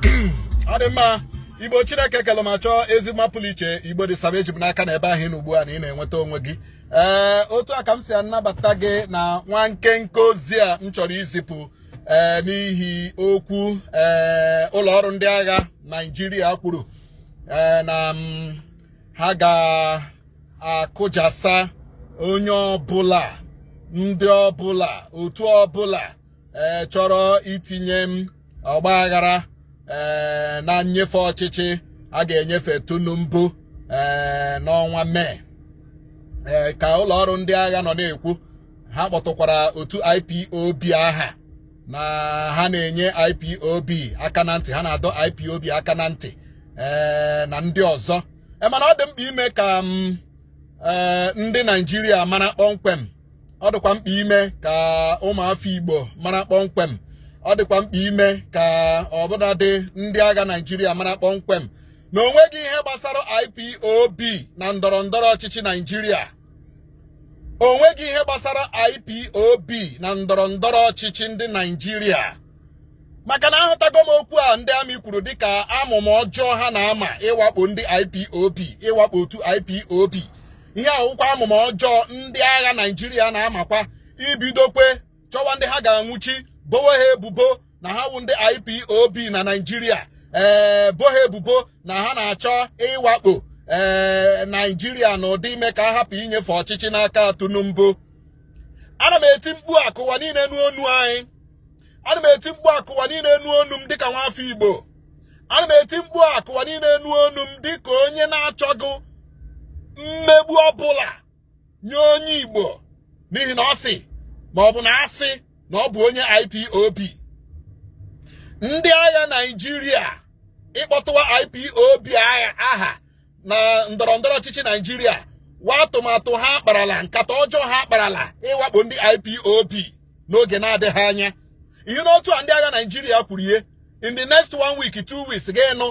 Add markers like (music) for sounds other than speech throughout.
ọ dị mma igbo chineke kelụ ma chọọ ezigbo iche igbo dị saba eji n'aka na ebe ahụ ị ugbu a na ị na-enweta onwe gị ee otu a ka m si anabata gị na nwa nkenke ozi a m chọrọ izipụ ee n'ihi okwu ee ụlọ ọrụ ndị agha naijiria kwuru ee na ha ga-akụjasa onye ọbụla ndị ọbụla otu ọbụla ee chọrọ itinye m ọgba aghara Eh, na nnyefe ọchịchị a ga-enyefe tunu mbụ eh, n'ọnwa mee eh, ka ụlọ ọrụ ndị agha nọ na-ekwu ha kpọtụkwara otu IPOB aha na ha na-enye IPOB aka na ntị ha na-adọ IPOB aka na ntị na ndị ọzọ mana ọ dị mkpa ime ka mm, ndị Naịjirịa mara kpọmkwem ọ dịkwa mkpa ime ka ụmụafọ Igbo mara kpọmkwem ọ dịkwa mkpa ime ka ọbụnadị ndị agha Naijiria mara kpọmkwem na o nweghị ihe gbasara IPOB na ndọrọ ndọrọ ọchịchị Naijiria. o nweghị ihe gbasara IPOB na ndọrọ ndọrọ ọchịchị ndị Naijiria. maka na ahụtago m okwu a ndị amị kwuru dịka amụma ọjọọ ha na-ama ịwakpo ndị IPOB ịwakpo otu IPOB ihe awụkwa amụma ọjọọ ndị agha Naijiria na-amakwa ibidokwe chọwa ndị ha ga-anwụchi bowe ha ebubo na ha wụ ndị IPOB na Naịjirịa ee eh, ha ebubo na ha na-achọ ịwakpo ee eh, Naịjirịa n'ụdị ime ka a hapụ inyefe ọchịchị n'aka Tinubu ana m eti mkpu akụwa niile n'onu anyị ana m eti mkpu akụwa niile n'onu m dịka nwafọ Igbo ana m eti mkpu akụwa niile n'onu m dịka onye na-achọghị mmegbu ọbụla nye onye Igbo n'ihi na ọ sị ma ọ bụ na asị na ọ bụ onye IPOB ndị agha naijiria ịkpọtụwa IPOB aha na ndọrọ ndọrọ ọchịchị naijiria wa atụmatụ ha akparala nkata ọjọọ ha akparala ịwakpo ndị IPOB n'oge na-adịghị anya ihe n'otu a ndị agha naijiria kwuru ihe in the next one week two weeks ga-enụ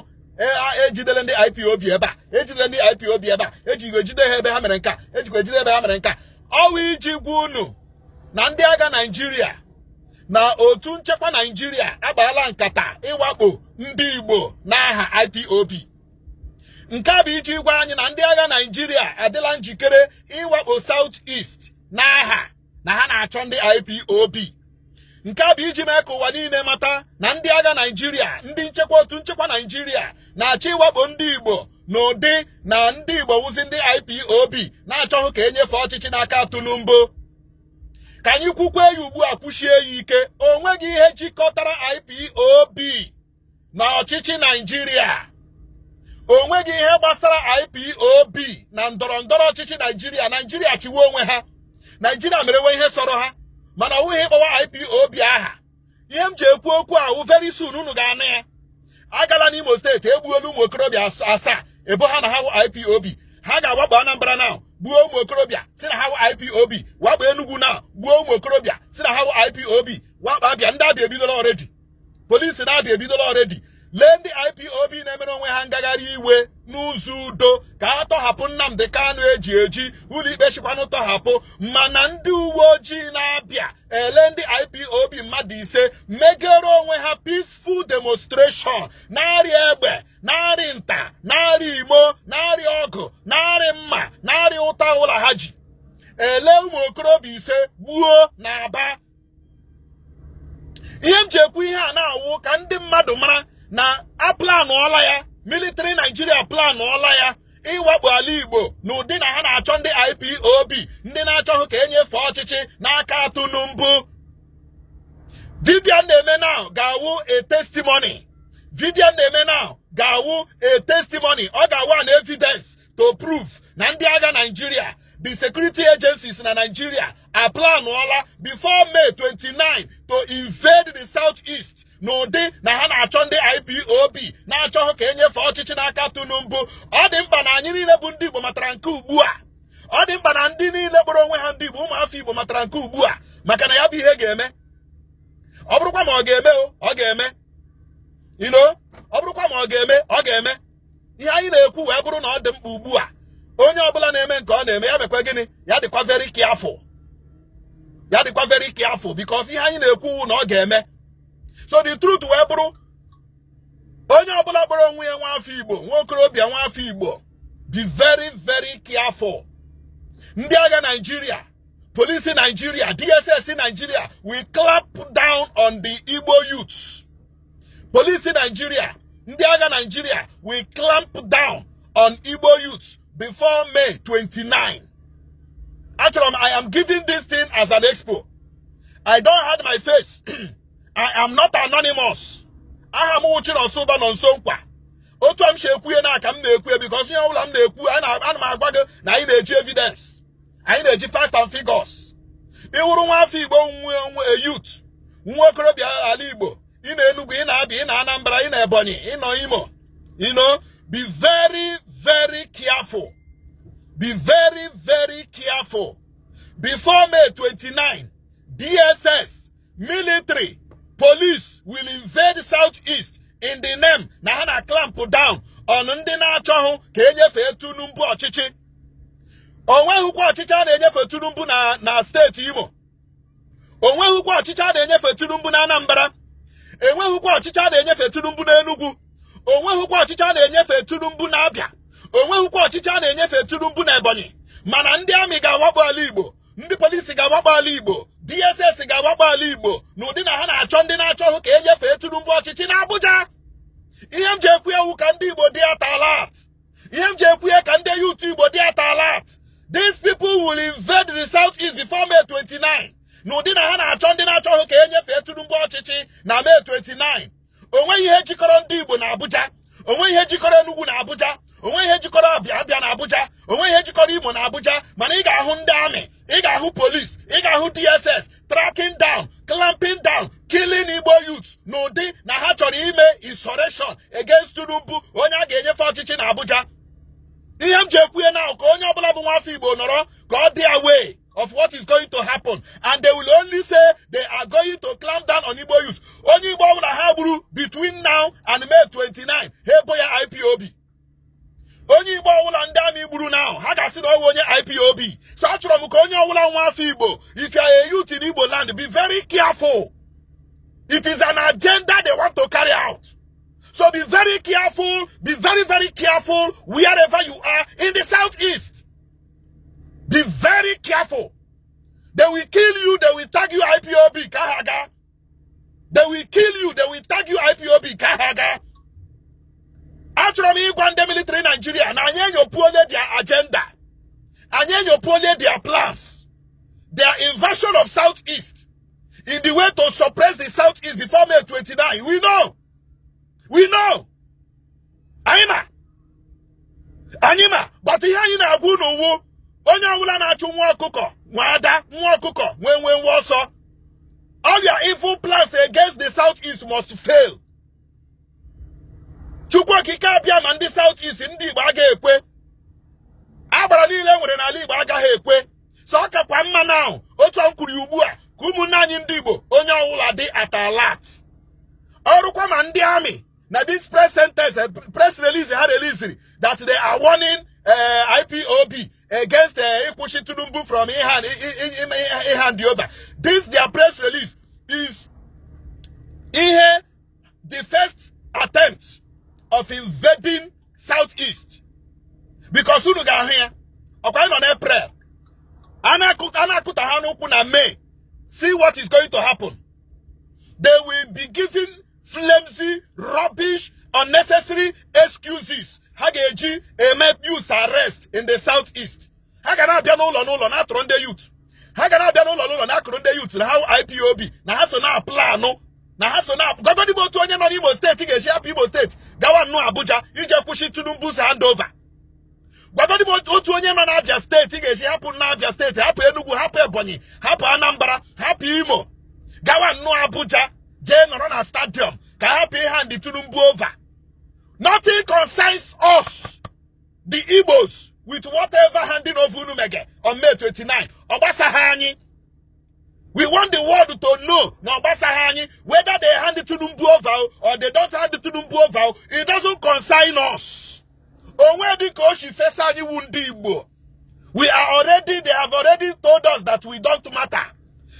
ejidele e ndị b ebe a ejidele ndị b ebe a ejikwa ejide ha ebe ha mere nka ejikwa ejide ebe ha mere nka ọwa iji gwa unu na ndị agha naijiria. na otu nchekwa naijiria agbaala nkata ịwakpo ndị igbo n'aha IPOB nke a bụ iji gwa anyị na ndị agha naijiria adịla njikere ịwakpo South est n'aha na ha na-achọ ndị IPOB nke a bụ iji mee ka ụwa niile mata na ndị agha naijiria ndị nchekwa otu nchekwa naijiria na-achọ ịwakpo ndị igbo n'ụdị na ndị igbo wụzi ndị IPOB na-achọghị ka e nyefe ọchịchị n'aka mbụ. ka anyị kwukwa eyi ugbu a kwuchie ya ike o nweghị ihe jikọtara IPOB na ọchịchị naijiria o nweghị ihe gbasara IPOB na ndọrọ ndọrọ ọchịchị naijiria naijiria chiwe onwe ha mere merewe ihe sọrọ ha mana ọ bụghị ịkpọwa IPOB aha ihe m ji ekwu okwu ahụ veri soon unu ga-anụ ya agala n'Imo steeti egbuola ụmụ okorobịa asaa ebo ha na ha IPOB ha ga-agbagba anambara now gbuo ụmụ okorobịa si na ipob wakpo enugwu na gbuo ụmụ okorobịa si na ha ipob wakpo abịa ndị abịa ebidola ọredi polisi na abịa ebidola ọredi lee ndị IPOB na-emere onwe ha ngagharị iwe n'ụzọ udo ka a tọhapụ Nnamdi Kanu eji eji ụlọikpe chịkwanụ tọhapụ mana ndị uwe ojii na-abịa ele ndị IPOB mmadụ ise megere onwe ha peaceful demonstration narị egbe narị nta narị imo ọgụ narị mma narị ụta ụlọ ha ji ele ụmụ okorobịa ise gbuo na aba ihe m ji ihe a na-awụ ka ndị mmadụ mara na a ọla ya military naijiria planụọla ya ịwakpo ala igbo na ụdị na ha na-achọ ndị IPOB ndị na-achọghị ka enyefe ọchịchị n'aka Tinubu vidio na-eme now ga-awụ a na-eme now ga-awụ a testimony ọ ga-awụ an evidence to prove na ndị agha naijiria the security agencies na Nigeria aplanụọla before May 29 to invade the south-east. n'ụdị na ha na-achọ ndị IPOB na-achọ ka ka e nyefe ọchịchị n'aka Tinubu ọ dị mkpa na anyị niile bụ ndị Igbo matara nke ugbu a ọ dị mkpa na ndị niile kpọrọ onwe ha ndị Igbo ụmụafọ Igbo matara nke ugbu a maka na ya bụ ihe ga-eme ọ bụrụkwa ma ọ ga-eme ọ ga-eme ino ọ bụrụkwa ma ọ ga-eme ọ ga-eme ihe anyị na-ekwu wee bụrụ na ọ dị mkpa ugbu a onye bụla na-eme nke ọ na-eme ya mekwa gịnị ya dịkwa very careful ya dịkwa very careful because ihe anyị na-ekwu na ọ ga-eme so the truth wee bụrụ onye ọbụla bụrụ onwe ya nwa afọ igbo nwa okorobịa nwa afọ igbo be very very careful ndị agha naijiria polisi naijiria dss naijiria we clap down on the igbo youths polisi naijiria ndị agha naijiria we clamp down on igbo youths before may 29 achọrọ m i am giving this thing as an expo i don hide my face (clears throat) I am not anonymous aha m Uchi Nonso nọ nso Nkwa otu a m si ekwu ihe na aka m na-ekwu because ihe ọbụla m na-ekwu ana m agwa gị na anyị na-eji evidence anyị na-eji fact and figures ịwụrụ nwa afọ Igbo nwe youth nwa okorobịa ala Igbo ị na-Enugu ị na-Abịa ị na Anambra ị na Ebonyi ị nọ Imo you know be very very careful be very very careful before May 29 DSS military police will invade south southeast in the name na ha na clamp down on ndị na-achọghị ka e nyefee Tinubu ọchịchị o nweghịkwa ọchịchị a na-enyefe Tinubu na na steeti Imo o nweghịkwa ọchịchị a na-enyefe Tinubu na Anambra enweghịkwa ọchịchị a na-enyefe Tinubu na Enugu o nweghịkwa ọchịchị a na-enyefe Tinubu na Abịa o nweghịkwa ọchịchị a na-enyefe Tinubu na Ebonyi mana ndị amị ga-awakpo ala Igbo ndị polisi ga-awakpo ala Igbo DSS ga-agbakpọ ala Igbo n'ụdị na ha na-achọ ndị na-achọ hụ ka enyefee Tinubu ọchịchị n'Abuja ihe m ji ekwu ewu ka ndị Igbo dị atalat ihe m ji ekwu ka ndị yut Igbo dị atalat these people will invade the south east before May 29 n'ụdị na ha na-achọ ndị na-achọ hụ ka e nyefee Tinubu ọchịchị na May 29 onweghị ihe jikọrọ ndị Igbo na Abuja onweghị ihe jikọrọ enugwu na Abuja onwe ihe jikọrọ abịa abịa na abuja onwe ihe jikọrọ imo na abuja mana ị ga-ahụ ndị amị ị ga-ahụ polis ị ga-ahụ dss tracking down clamping down killing igbo youth n'ụdị na ha chọrọ ime insurrection against Tinubu onye a ga-enyefe ọchịchị na abuja ihe m ji ekwuhe na ka onye ọbụla bụ nwafọ igbo nọrọ ka ọ dị away of what is going to happen and they will only say they are going to clamp down on igbo youth onye igbo ọbụla ha gburu between now and May 29 ha ebo ya IPOB onye igbo ndị na ha ga-asị na onye ipob so m ka onye nwa afọ igbo if you are a youth in igbo land be very careful it is an agenda they want to carry out so be very careful be very very careful wherever you are in the southeast be very careful they will kill you they will tag you ipob Kahaga. they will kill you they will tag you ipob Kahaga achọrọ m ịgwa ndị militri naijiria na anyị enyopuole their agenda anyị enyopuole their plans their invasion of southeast in the way to suppress the southeast before may 29 we know we know anyị ma anyị ma gbata ihe anyị na-agwa n'uwu onye ọbụla na-achụ nwa ọkụkọ nwa ada nwa ọkụkọ nwee nwee nwa ọsọ all your evil plans against the southeast must fail chukwu okike abịa ma ndị South East ndị Igbo aga ekwe agbara niile nwere n'ala Igbo agaghị ekwe so ọ kakwa mma na ahụ otu ọ ugbu a ka ụmụnne anyị ndị Igbo onye ọbụla dị atalat ọrụkwa ma ndị amị na dis press sentence eh, press release ha releasiri that they are warning eh, IPOB against eh, ịkwụsị Tinubu from hand over this their press release is ihe the first attempt of invading southeast because unu do ahu ọkwa ị nọ n'eprel a see what is going to happen they will be giving flimsy rubbish unnecessary excuses ha ga arrest in the southeast ha biano na-abịa n'ụlọ n'ụlọ na-atụrụ youth ha biano na-abịa n'ụlọ n'ụlọ na-akụrụ youth na ha IPOB na ha so na-aplanụ na ha so na gọgọdị otu onye nọ n'Imo steeti ga-esi hapụ Imo steeti gawa nnọọ Abuja iji kwụsị Tinubu's handover gwagodị m otu onye nọ n'Abia steeti ga-esi hapụ n'Abia steeti hapụ Enugu hapụ Ebonyi hapụ Anambra hapụ Imo gawa nnọọ Abuja jee nọrọ na stadium ka hapụ hand Tinubu over nothing concerns us the Igbos with whatever handing over unu mege on May 29 ọ ha anyị We want the world to know now whether they hand it to Numbuo vow or they don't hand it to Numbuo vow. It doesn't concern us. We are already, they have already told us that we don't matter.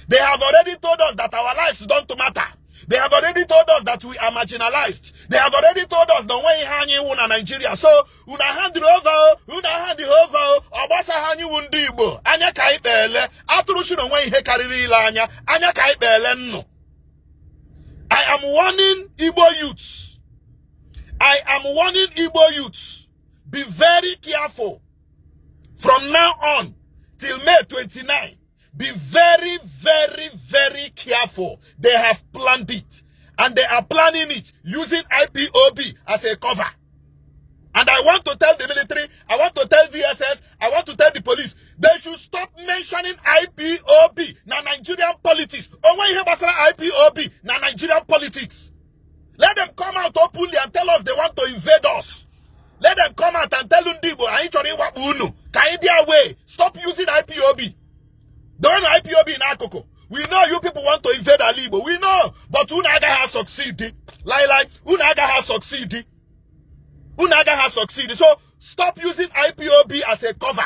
They have already told us that our lives don't matter. They have already told us that we are marginalized. They have already told us the way hanging won Nigeria. So, una hand over, una hand over, obasa hanyi wundi igbo. Anya ka ikpele, atụrụ shi way he karịrị ile anya, anya ka ikpele nnụ. I am warning Igbo youths. I am warning Igbo youths. Be very careful. From now on till May 29, be very, very, very careful. They have planned it. And they are planning it using IPOB as a cover. And I want to tell the military, I want to agaghị succeed. Unu has succeeded. So stop using IPOB as a cover.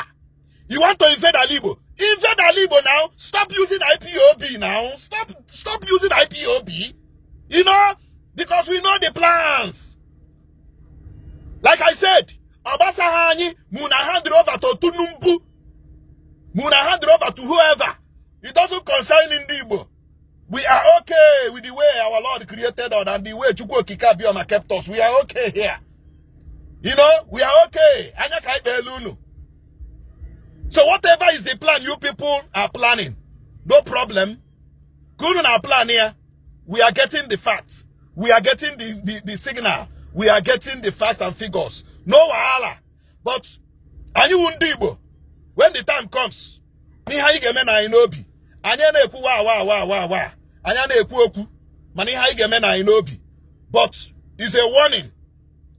You want to invade Alibo? Invade Alibo now. Stop using IPOB now. Stop stop using IPOB. You know, because we know the plans. Like I said, Obasa Hani, Muna hand over to Tunumbu. Muna hand over to whoever. It doesn't concern Indibo. God created us and the way Chukwu Kikabioma kept us. We are okay here. You know, we are okay. Anya kai So whatever is the plan you people are planning, no problem. Kunun our plan here. We are getting the facts. We are getting the, the, the signal. We are getting the facts and figures. No wahala. But anyị wụ ndị when the time comes n'ihe anyị ga-eme na anyị n'obi anyị na-ekwu wa awa awa awa awa anyị na-ekwu mana ihe anyị but is a warning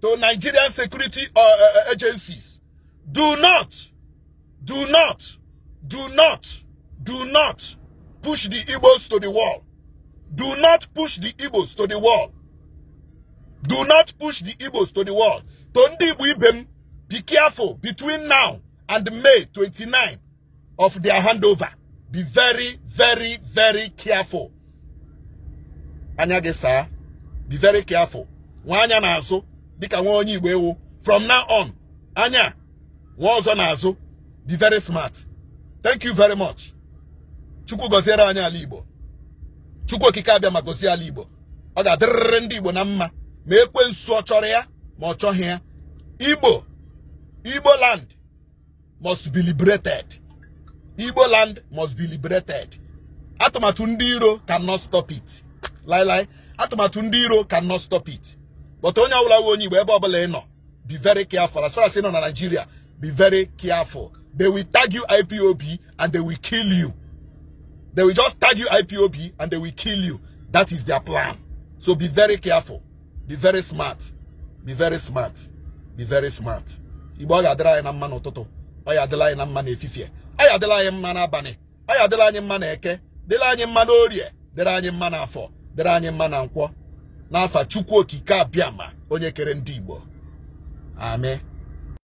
to Nigerian security uh, uh, uh, agencies do not do not do not do not push the Igbos to the wall do not push the Igbos to the wall do not push the Igbos to the wall to ndị be careful between now and May 29 of their handover be very very very careful anya gị saa be very careful nwa anya na-azụ dịka nwa onye igbo ewu from now on anya nwa ọzọ na-azụ be very smart thank you very much chukwu gọziere anyị ala igbo chukwu okike abịa ma gozie ala igbo ọ ga-adịrịrị ndị igbo na mma ma nsu ọ chọrọ ya ma ọ chọghị ya igbo igbo land must be liberated igbo land must be liberated atụmatụ ndị iro cannot stop it laịlaị atụmatụ ndị iro cannot stop it but onye ọbụla nwe onye Igbo ebe ọbụla ị nọ be very careful as far as ị nọ na Nigeria be very careful they will tag you IPOB and they will kill you they will just tag you IPOB and they will kill you that is their plan so be very careful be very smart be very smart be very smart Igbo ọ ga-adịrị anyị na mma n'ụtụtụ ọ ya adịla anyị na mma n'efifie ọ ya adịla anyị mma n'abalị ọ ya adịla anyị mma n'eke dịrị anyị mma n'orie dịrị anyị mma n'afọ dere anyị mma na nkwọ n'afa chukwu okike abịa ma onye kere ndị igbo amen